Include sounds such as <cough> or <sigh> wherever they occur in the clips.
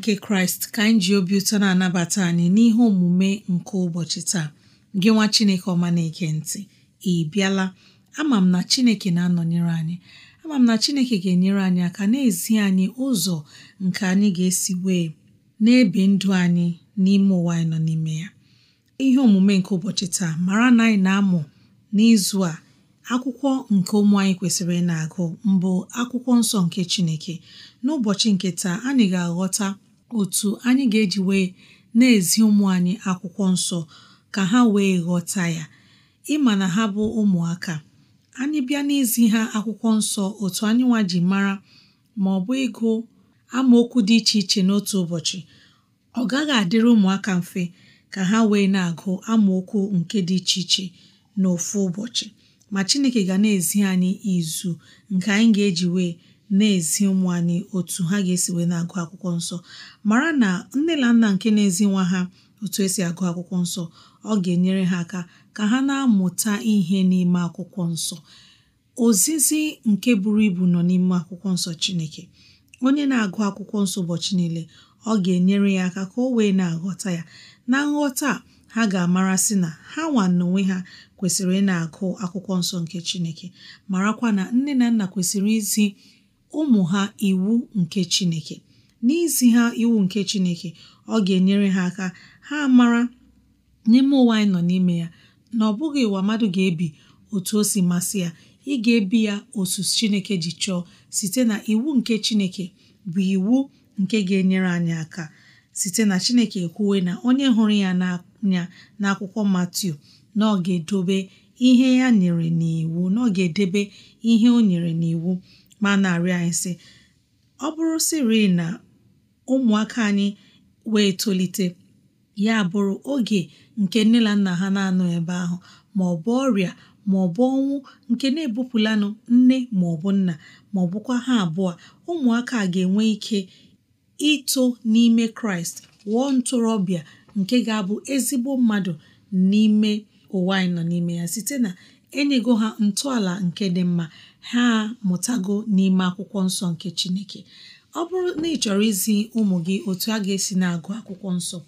nke kraịst ka anyị ji obi ụtọ na-anabata anyị n'ihe omume nke ụbọchị taa gị nwa chineke ọma na-ege ntị ị bịala ama m na chineke na-anọnyere anyị ama m na chineke ga-enyere anyị aka na-ezi anyị ụzọ nke anyị ga-esi wee na-ebi ndụ anyị n'ime ụwa anyị nọ n'ime ya ihe omume nke ụbọchị taa mara na anyị na-amụ n'izu a akwụkwọ nke ụmụ anyị kwesịrị ị na-agụ mbụ akwụkwọ nsọ nke Chineke n'ụbọchị nke taa anyị ga-aghọta otu anyị ga-eji wee na-ezi ụmụ anyị akwụkwọ nsọ ka ha wee ghọta ya ịma na ha bụ ụmụaka anyị bịa n'izi ha akwụkwọ nsọ otu anyị nwa mara ma ọ bụ ịgụ amaokwu dị iche iche n'otu ụbọchị ọ gaghị adịrị ụmụaka mfe ka ha wee na-agụ amaokwu nke dị iche iche n'ofu ụbọchị ma Chineke ga na-ezi anyị izu nke anyị ga-eji wee na-ezi ụmụ anyị otu ha ga-esi wee na-agụ akwụkwọ nsọ mara na nne na nna nke na-ezi nwa ha otu esi agụ akwụkwọ nsọ ọ ga-enyere ha aka ka ha na-amụta ihe n'ime akwụkwọ nsọ ozizi nke buru ibu nọ n'ime akwụkwọ nsọ Chineke onye na-agụ akwụkwọ nsọ ụbọchị niile ọ ga-enyere ya aka ka o wee na-aghọta ya na nghọta ha ga-amara sị na ha nwa n'onwe ha kwesịrị ị na-agụ akwụkwọ nsọ nke Chineke marakwa na nne na nna kwesịrị izi ụmụ ha iwu nke Chineke n'izi ha iwu nke Chineke ọ ga-enyere ha aka ha mara n'ime ụwa anyị nọ n'ime ya na ọ bụghị ụwa mmadụ ga-ebi otu o si masị ya ị ga-ebi ya otu Chineke ji chọọ site na iwu nke Chineke bụ iwu nke ga-enyere anyị aka site na Chineke ekwuwe na onye hụrụ ya n'anya akwụkwọ Matiu na ọ ga-edobe ihe ya nyere n'iwu na ọ ga-edebe ihe o nyere n'iwu ma na-arịọ anyị sị ọ bụrụ siri na ụmụaka anyị wee tolite ya bụrụ oge nke nne na nna ha na-anọ ebe ahụ ma ọ bụ ọrịa ma ọ bụ ọnwụ nke na-ebupụlanụ nne ma ọ bụ nna ma ọ bụkwa ha abụọ ụmụaka ga-enwe ike ito n'ime kraịst wụọ ntorobịa nke ga-abụ ezigbo mmadụ n'ime ụwa anyị nọ n'ime ya site na enyego ha ntọala nke dị mma ha mụtago n'ime akwụkwọ nsọ nke chineke ọ bụrụ na ị chọrọ izi ụmụ gị otu a ga-esi na-agụ akwụkwọ nsọ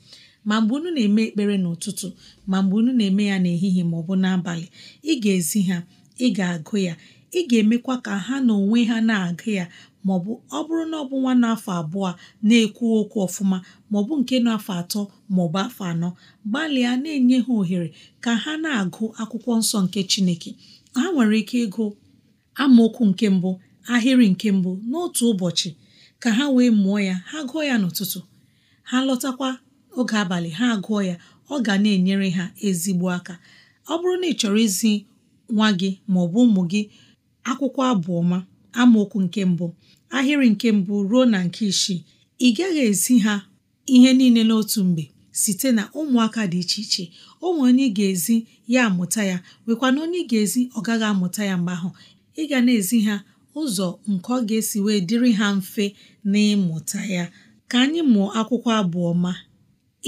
ma mgbe unu na-eme ekpere n'ụtụtụ ma mgbe unu na-eme ya n'ehihie ma ọ bụ n'abalị ị ga-ezi ha ị ga-agụ ya ị ga-emekwa ka ha na onwe ha na-agụ ya maọbụ ọ bụrụ na ọ bụ nwa n'afọ abụọ na-ekwu okwu ọfụma maọbụ nke na-afọ atọ maọbụ afọ anọ gbalịa na-enye ha ohere ka ha na-agụ akwụkwọ nsọ nke Chineke ha nwere ike ịgụ amaokwu nke mbụ ahịrị nke mbụ n'otu ụbọchị ka ha wee mụọ ya ha gụọ ya n'ụtụtụ ha lọtakwa oge abalị ha gụọ ya ọ ga na-enyere ha ezigbo aka ọ bụrụ na ị chọrọ izi nwa gị maọbụ ụmụ gị akwụkwọ abụ ọma amaokwu nke mbụ ahịrị nke mbụ ruo na nke isii ị gaghị ezi ha ihe niile n'otu mgbe site na ụmụaka dị iche iche o onye ga-ezi ya amụta ya nwekwa na onye ga-ezi ọ gaghị amụta ya mgbe ahụ ị ga na-ezi ha ụzọ nke ọ ga-esi wee dịrị ha mfe n'ịmụta ya ka anyị mụọ akwụkwọ abụọ ma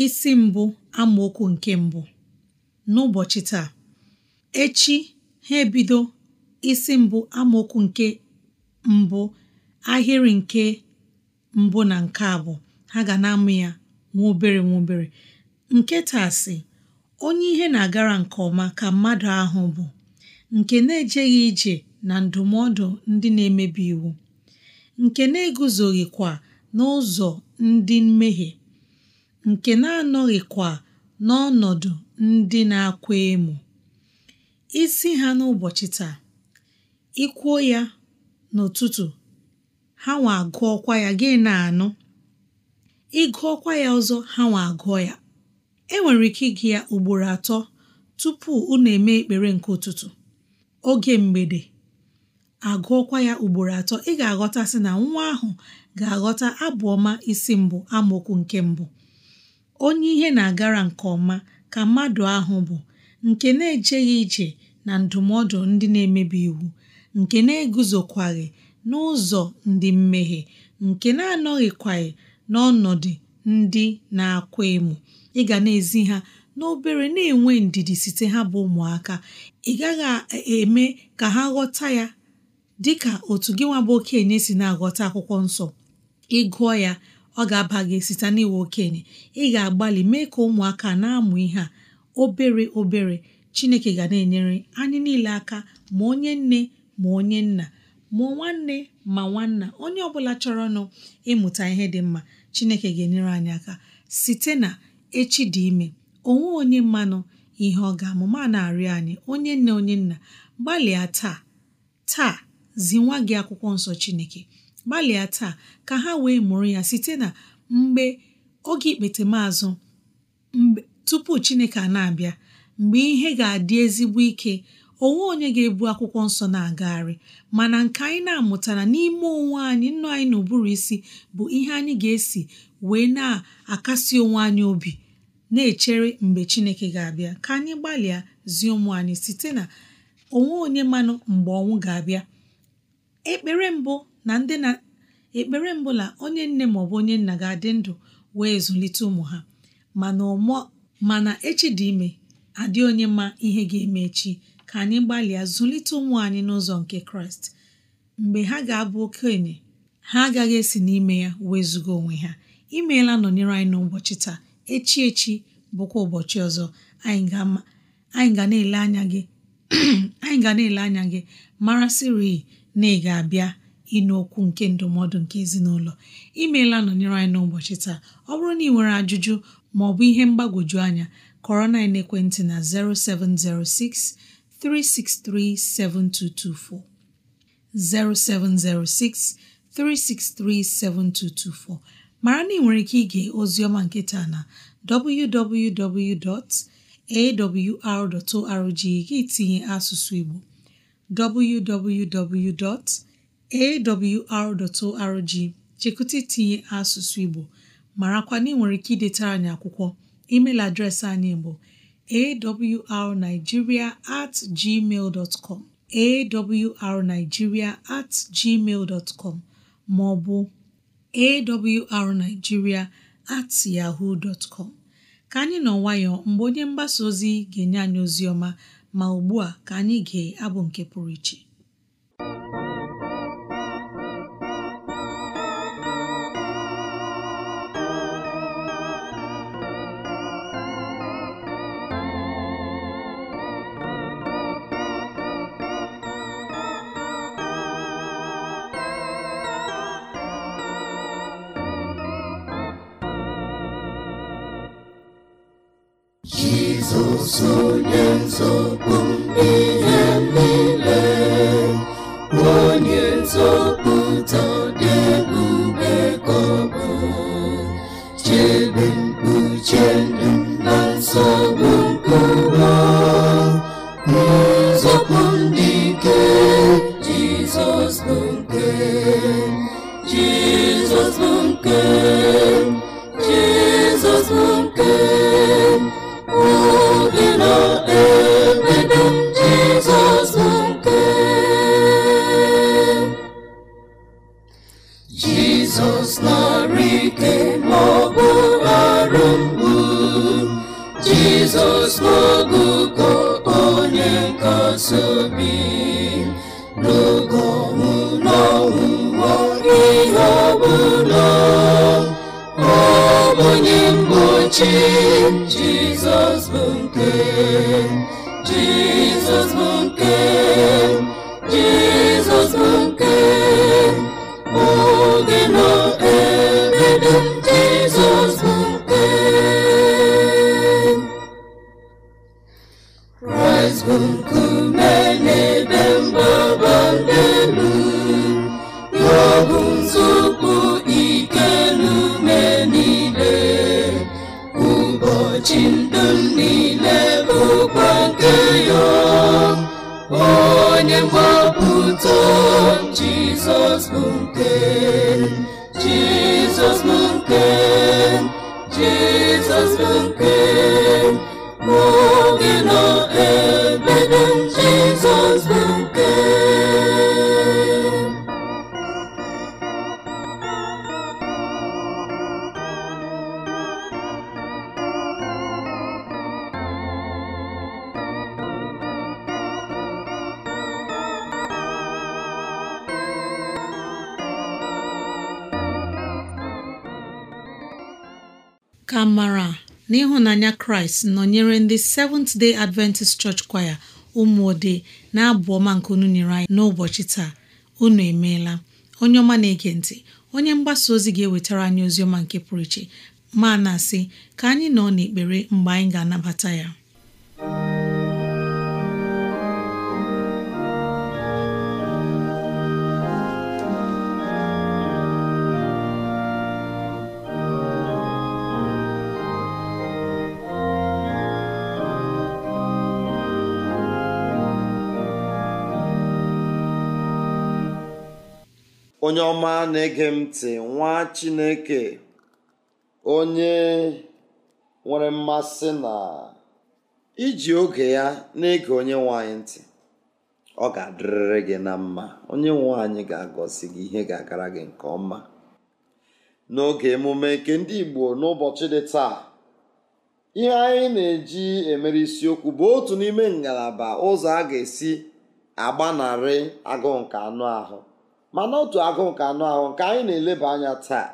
isi mbụ amaokwu nke mbụ n'ụbọchị taa echi ha ebido isi mbụ amaokwu nke mbụ ahịrị nke mbụ na nke abụọ ha ga na-amụ ya nwa obere nwa obere nke onye ihe na-agara nke ọma ka mmadụ ahụ bụ nke na-ejeghị ije na ndụmọdụ ndị na-emebi iwu nke na-eguzoghịkwa n'ụzọ ndị mmehie nke na-anọghịkwa n'ọnọdụ ndị na-akwa emo isi ha n'ụbọchị taa ikwuo ya n'ụtụtụ ha nwa agụọkwa ya gị na-anụ ị ịgụọkwa ya ọzọ ha nwa agụọ ya e nwere ike ịgụ ya ugboro atọ tupu unu eme ekpere nke ụtụtụ oge mgbede agụọkwa ya ugboro atọ ị ga-aghọtasị na nwa ahụ ga-aghọta abụ ọma isi mbụ amaokwu nke mbụ onye ihe na-agara nke ọma ka mmadụ ahụ bụ nke na-ejeghị ije na ndụmọdụ ndị na-emebi iwu nke na-eguzokwaghị n'ụzọ ndị mmehie nke na-anọghịkwaghị n'ọnọdụ ndị na-akwa emo ị ga na-ezi ha n'obere na-enwe ndidi site ha bụ ụmụaka ị gaghị eme ka ha ghọta ya dịka otu gị nwa bụ okenye si na-aghọta akwụkwọ nsọ ị gụọ ya ọ ga-aba gị site n'iwe okenye ị ga-agbalị mee ka ụmụaka na-amụ ihe a obere obere Chineke ga na-enyere anyị niile aka ma onye nne ma onye nna mụọ nwanne ma nwanna onye ọbụla chọrọ chọrọnụ ịmụta ihe dị mma chineke ga-enyere anyị aka site na echi dị ime onwe onye mmanụ ihe ọ ga-amụma na-arịọ anyị onye nne onye nna gbalịa taa taa zi nwa gị akwụkwọ nsọ chineke gbalịa taa ka ha wee mụrụ ya site na mgbe oge ikpetemazụ tupu chineke a na-abịa mgbe ihe ga-adị ezigbo ike onwe onye ga-ebu akwụkwọ nsọ na-agagharị mana nke anyị na-amụtara n'ime onwe anyị nnu anyị na ụbụrụ isi bụ ihe anyị ga-esi wee na-akasi onwe anyị obi na-echere mgbe Chineke ga-abịa ka anyị gbalịa zie ụmụ anyị site na onwe onye manụ mgbe ọnwụ ga-abịa ekpere mbụ na ndị na ekpere mbụ na onye nne ma ọ bụ onye nna ga-adị ndụ wee zụlite ụmụ ha mana mana echi dị ime adị onye ma ihe ga-eme echi ka anyị gbalịa zụlite ụmụ anyị n'ụzọ nke kraịst mgbe ha ga-abụ okenye ha agaghị esi n'ime ya wezụga onwe ha imeela nọnyere anyị n'ụbọchị taa echi echi bụkwa ụbọchị ọzọ anyị ga na-ele anya gị <clears throat> anyị na mara na ị ga-abịa ịnụ okwu nke ndụmọdụ nke ezinụlọ imeela nọnyere anyị n'ụbọchị taa ọ bụrụ na ị nwere ajụjụ ma ọ bụ ihe mgbagwoju anya kọrọ na ekwentị na 0706 363 mara na ị nwere ike ige oziọma nketa na www.awr.org gị tinye asụsụ Igbo www.awr.org chekụta itinye asụsụ Igbo marakwa na ị nwere ike idetara anyị akwụkwọ adreesị anyị bụ awrnigeria at gmail com awrnigeria at gmail dot com ma ọ bụ awrnigeria at yahoo dot ka anyị nọ nwayọọ mgbe onye mgbasa ozi ga-enye anyị ozi ọma ma ugbu a ka anyị gee abụ nke pụrụ iche Jizọs onye nzọpụ onye mgbochi Jizọs bụ nke Jizọs bụ nke ịhụnanya kraịst nọnyere ndị Seventh Day Adventist Church Choir ụmụode na-abụ ọma nke unu nyere anyị n'ụbọchị taa unu emeela onye ọma na-ege ntị onye mgbasa ozi ga-ewetara anyị ozi ọma nke pụrụ iche ma na-asị ka anyị nọ n'ekpere mgbe anyị ga-anabata ya onye ọma na-ege m ntị nwa chineke onye nwere mmasị na iji oge ya na-ege onye nwanyị ntị ọ ga-adịrịrị gị na mma onye nwanyị ga-agọzi gị ihe ga-agara gị nke ọma n'oge emume nke ndị igbo n'ụbọchị dị taa ihe anyị na-eji emere isiokwu bụ otu n'ime ngalaba ụzọ a ga-esi agbanarị agụụ nke anụ ahụ mana otu agụ nke anụ ahụ nke anyị na-eleba anya taa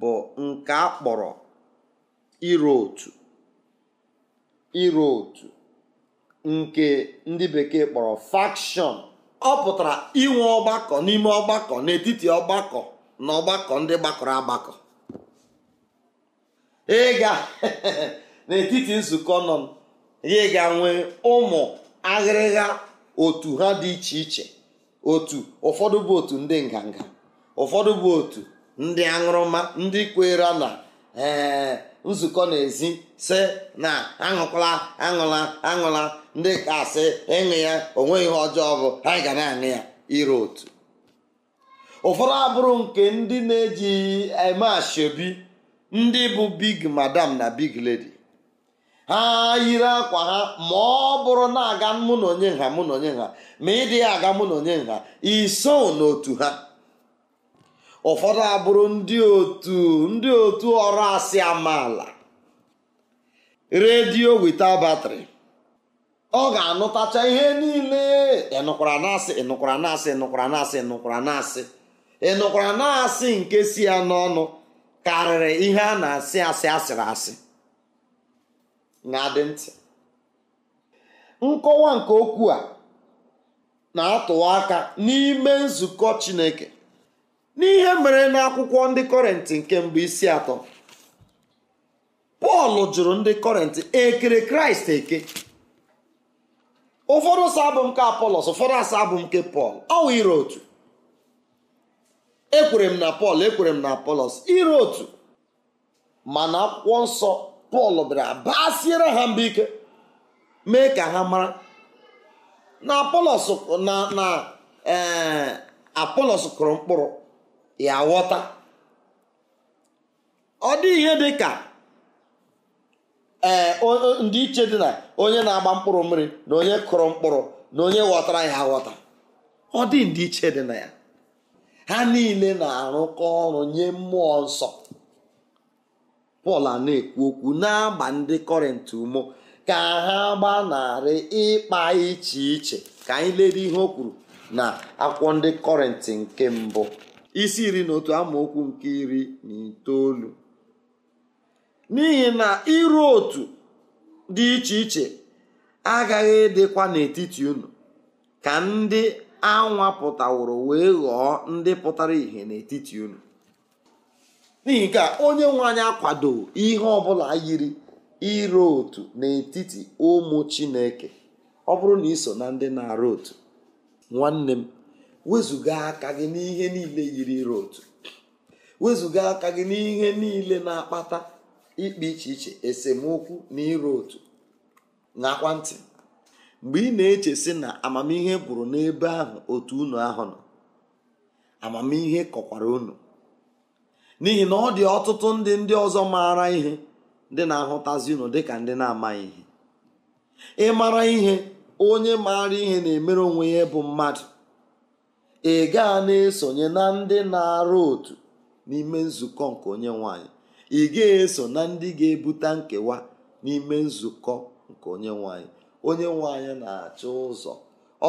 bụ nke a kpọrọ iru otu iru otu nke ndị bekee kpọrọ fakshọn ọ pụtara inwe ọgbakọ n'ime ọgbakọ n'etiti ọgbakọ na ọgbakọ ndị gbakọrọ agbakọ ịga <laughs> n'etiti nzukọ nọ ya ga nwee ụmụ aghịrịgha otu ha dị iche iche otu ụfọdụ bụ otu ndị nganga ụfọdụ bụ otu ndị aṅụrụma ndị kwere na ee eh, nzukọ ezi si na aṅụkwala aṅụla aṅụla ndị kasị ịṅụ ya onweghị ihe ọjọọ bụ ha ga na-aṅụ ya iro otu ụfọdụ abụrụ nke ndị na-eji eme eh, ashebi ndị bụ big madam na big lady ha yiri akwa ha ma ọ bụrụ na-aga mụ na onye nha mụ na onye nha ma ịdị ya aga mụ na onye nha iso n'otu ha ụfọdụ abụrụ ndị otu ndị otu ọrụ asị amaala redio wita batrị ọ ga-anụtacha ihe niile ịnụkwara na-asị ịnụkwara na-asị ịnụkwara na-asị ịnụkwara na-asị ịnụkwara na-asị nke si ya n'ọnụ karịrị ihe a na-asị asị asịrị asị na-adị ntị nkọwa nke okwu a na-atụwa aka n'ime nzukọ Chineke n'ihe mere n'akwụkwọ ndị kọrentị nke mbụ isi atọ Pọl jụrụ ndị kọrentị ekere Kraịst eke ụfọdụ sọ abụ nke Apọlọs ụfọdụ asọ nke Pọl ọwụ ire otu ekwere m na Pọl ekwere m na Apọlọs ire otu mana akwụkwọ nsọ pọl bịara basiere ha mba ike mee ka ha mara na apolos na na ee eh, apolos kụrụ mkpụrụ ya ghọta ọ dị ihe dị ka ee eh, ndị dị na onye na-agba mkpụrụ mmiri na onye kụrụ mkpụrụ na onye ghọtara ya ghọta ọ dị ndị dị na ya ha niile na-arụkọ ọrụ nye mmụọ nsọ pọl na-ekwu okwu na-agba ndị kọrịntị ụmụ ka ha gbanarị ịkpa iche iche ka anyị lere ihe o kwuru na akwụkwọ ndị kọrịntị nke mbụ isi iri na otu amaokwu nke iri na itoolu n'ihi na iru otu dị iche iche agaghị edekwa n'etiti unu ka ndị anwapụtaworo wee ghọọ ndị pụtara ìhè n'etiti unu n'ihi nke a onye nwe anyị akwado ihe ọbụla yiri iro otu n'etiti ụmụ chineke ọ bụrụ na iso na ndị na-arụ otu nwanne m wezụga aka gị n'ihe niile yiri iro otu wezụga aka gị n'ihe niile na-akpata ikpe iche iche esemokwu na iro otu nakwa ntị mgbe ị na-eche sị na amamihe gwụrụ n'ebe ahụ otu unu ahụ nọ amamihe kọkwara unu n'ihi na ọ dị ọtụtụ ndị ndị ọzọ maara ihe ndị na-ahụtazi unu dịka ndị na-amaghị ihe ịmara ihe onye maara ihe na-emere onwe ya bụ mmadụ ị gaa na-esonye na ndị na-arụ otu n'ime nzukọ nke onye nwanyị ị ga-eso na ndị ga-ebute nkewa n'ime nzukọ nke onye nwanyị onye nwanyị na-achọ ụzọ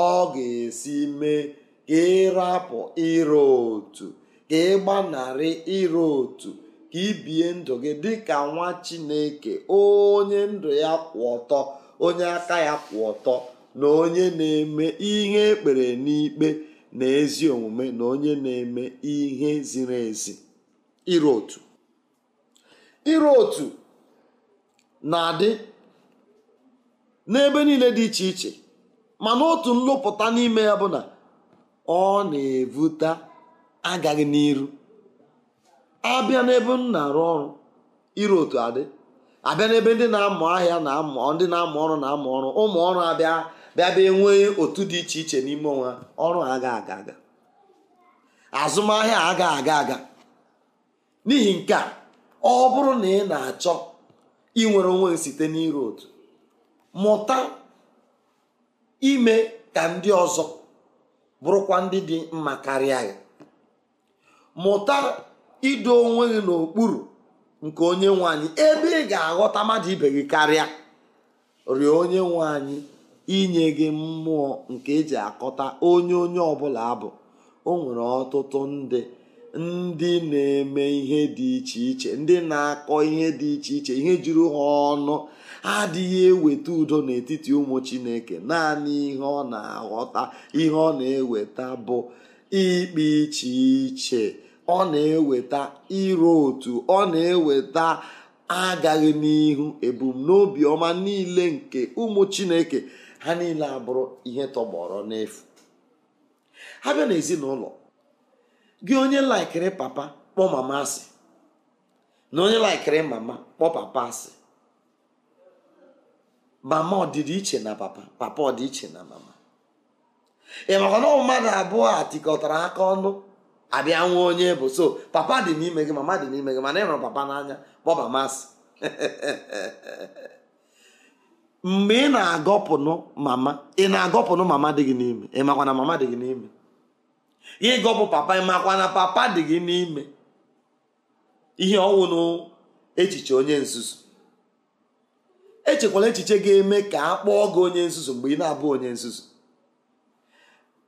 ọ ga-esi mee ka ịrapụ ịrụ otu ka ị gbanarị ịrụ otu ka ibie ndụ gị dịka nwa chineke onye ndụ ya kwụ ọtọ onye aka ya kwụ ọtọ na onye na-eme ihe ekpere n'ikpe na ezi omume na onye na-eme ihe ziri ezi ịrụ otu ịrụ otu na-adị n'ebe niile dị iche iche mana otu nlụpụta n'ime ya bụ na ọ na-evute agaghị n'iru abịa n'ebe m na-arụ ọrụ iru otu adị abịa n'ebe ndị na-amụ ahịa na ndị na-amụ ọrụ na-amụ ọrụ ụmụ ọrụ abịa bịa bịa otu dị iche iche n'ime onwe ọrụ aga aga aga azụmahịa aga aga aga n'ihi nke a ọ bụrụ na ị na-achọ inwere onwe site n'iru otu mụta ime ka ndị ọzọ bụrụkwa ndị dị mma karịa gị mụta ido onwe gị n'okpuru nke onye nwe ebe ị ga-aghọta mmadụ ibe gị karịa rịọ onye nwe inye gị mmụọ nke eji akọta onye onye ọbụla abụ o nwere ọtụtụ ndị ndị na-eme ihe dị iche iche ndị na-akọ ihe dị iche iche ihe juru ha ọnụ adịghị eweta udo n'etiti ụmụ chineke naanị ihe ọ na-aghọta ihe ọ na-eweta bụ ikpe iche iche ọ na-eweta iro otu ọ na-eweta agaghị n'ihu ebumnobi ọma niile nke ụmụ chineke ha niile abụrụ ihe tọgbọrọ n'efu ha bịa n'ezinụlọ gị onye laikiri papa kpọ mama asị na onye laikiri mama kpọ papa asị mama ọdịdị iche na papa papa ọdịiche na mama ị maka na mmadụ abụọ a tikọtara aka ọnụ abịa nwa onye bụ so papa dị n'ime gị mama dị n'ime gị mana ị hụrụ papa n'anya bọba masị <laughs> mgbe ị na-agọpụnụ mama ị na-agọpụnụ mama dị gị n'ime ị makwa na mama dị gị n'ime ịgọpụ papa ị makwa na papa dị gị n'ime ihe ọnwụ echiche onye nzuzu echekwala echiche ga-eme ka a kpọọ gị onye nzuzu mgbe ị na-abụ onye nzuzu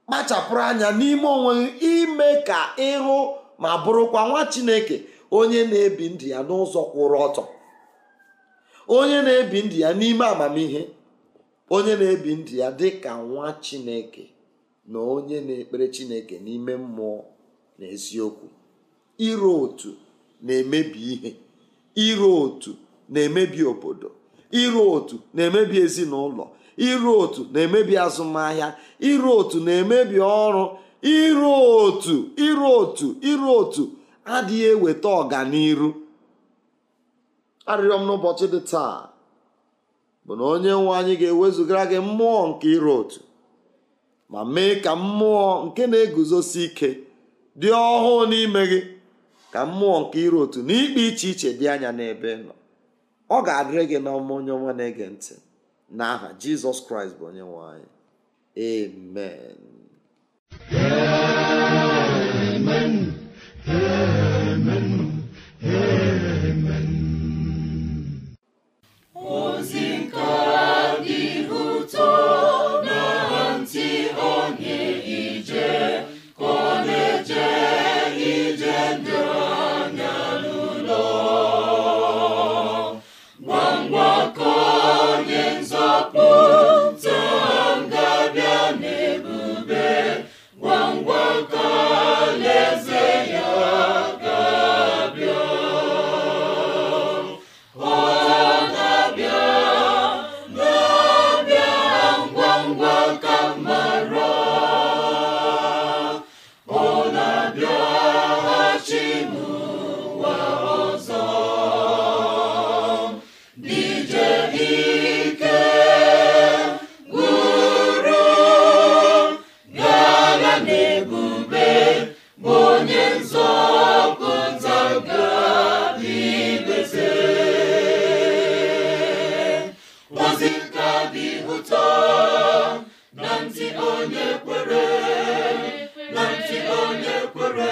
kpachapụrụ anya n'ime onwe gị ime ka ịhụ ma bụrụkwa nwa chineke onye na-ebi ndụ ya n'ụzọ kwụrụ ọtọ onye na-ebi ndụ ya n'ime amamihe onye na-ebi ndụ ya dị ka nwa chineke na onye na-ekpere chineke n'ime mmụọ na eziokwu iro otu na-emebi ihe iro otu na-emebi obodo iro otu na-emebi ezinụlọ iru otu na-emebi azụmahịa iru otu na-emebi ọrụ iru otu iru otu iru otu adịghị eweta ọganiru arịrịọ m n'ụbọchị dị taa bụ na onye nwe anyị ga-ewezugara gị mmụọ nke iru otu ma mee ka mmụọ nke na-eguzosi ike dị ọhụụ n'ime gị ka mmụọ nke iru otu n'ikpe iche iche dị anya n'ebe nọ ọ ga-adịrị gị n'ọma onye ọma na-ege ntị n'aha jizọs kraịst bụ onye nwanyị. anyị amen ụtọ na ntị onye kwere na ntị onye kwere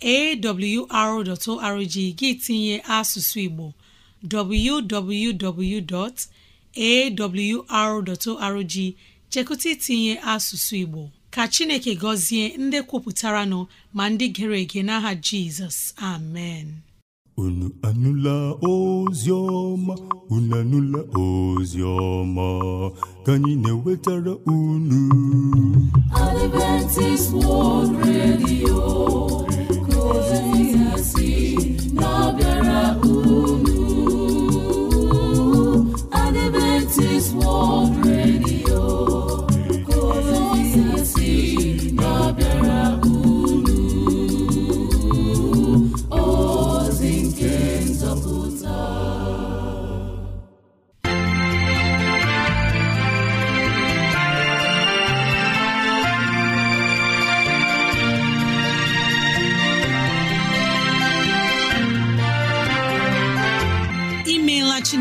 awr.org gị tinye asụsụ Igbo www.awr.org chekụta itinye asụsụ Igbo ka Chineke gọzie ndị kwupụtara nọ ma ndị gere ege n'aha Jizọs amen unu anụla ozi ọma unu anụla ozi ọma ka anyị na-ewetara unu Adventist World Radio Adventist world.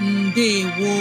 ndewo